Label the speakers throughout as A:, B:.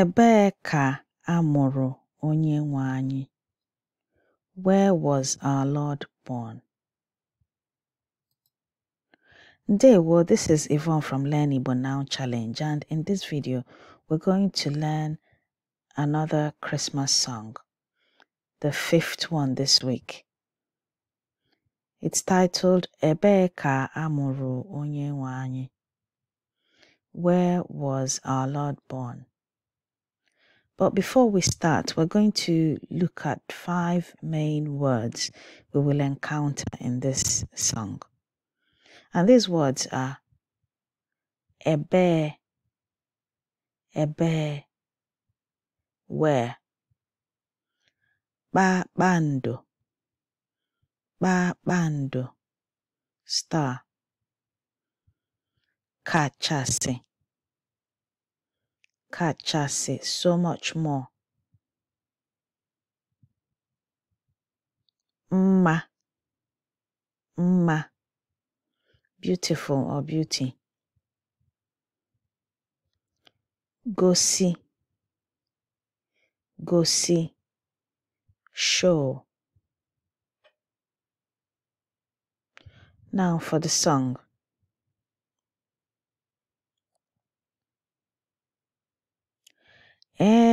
A: Ebee ka a mụrụ anyị? Where was our Lord born? world, this is Yvonne from Learn Igbo Now Challenge and in this video we're going to learn another Christmas song, the fifth one this week. It's titled Ebee amụrụ onye Where was our Lord born? But before we start, we're going to look at five main words we will encounter in this song. And these words are ebe, ebe, where, ba bando, ba bando, star, kachasi, kachasị eh, so much more mma mma beautiful or beauty gosi gosi show now for the song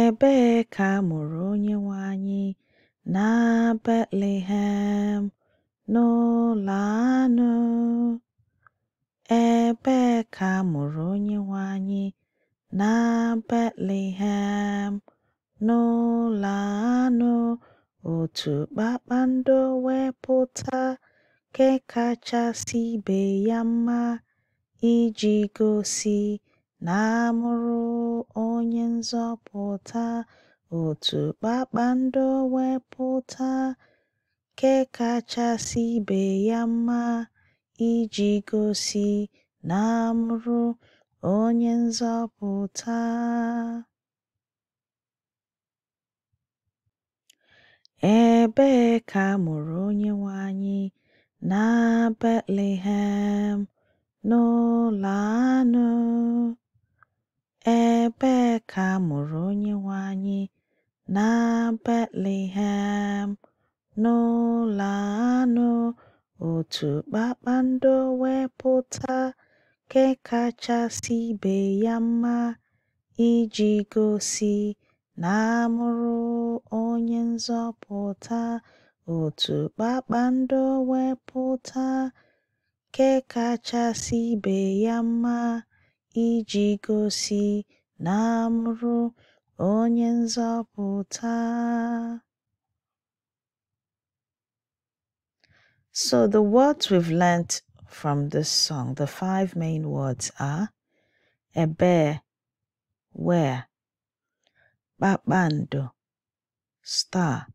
A: Ebee ka a mụrụ anyị na Betlehem, n'ụlọ anụ? Ebee ka a mụrụ anyị na Betlehem, n'ụlọ anụ? Otu kpakpando wepụta nke kachasị ibe ya mma iji gosi na onye nzọpụta, otu kpakpando wepụta kekachasị ibe ya mma, iji gosi na amụrụ onye nzọpụta. Ebee ka amụrụ onye Onyenwe anyị? Na Betlehem, n'ụlọ anụ. Ebee ka a mụrụ nwe anyị na Betlehem, n'ụlọ anụ otu kpakpando wepụta kekachasị ibe ya mma iji gosi na a mụrụ Onye Nzọpụta otu kpakpando wepụta kekachasị kachasị ibe ya mma. iji gosi na m Onye nzọpụta. So the words we've learnt from this song, the five main words are ebe, where, kpakpando, star,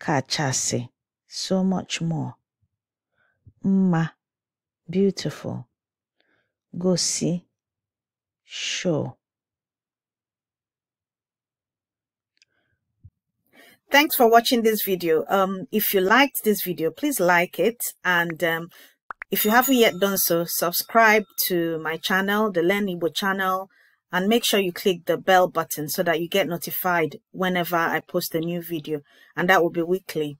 A: kachasị, so much more, mma, beautiful, gosi show. Thanks for watching this video. Um, if you liked this video, please like it. And um, if you haven't yet done so, subscribe to my channel, the Learn Igbo channel, and make sure you click the bell button so that you get notified whenever I post a new video. And that will be weekly.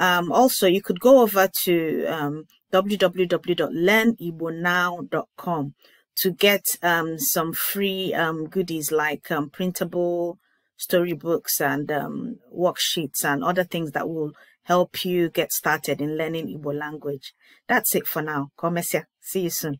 A: Um, also, you could go over to um, www.learnibonow.com to get um, some free um, goodies like um, printable storybooks and um, worksheets and other things that will help you get started in learning Igbo language. That's it for now. Komesia. See you soon.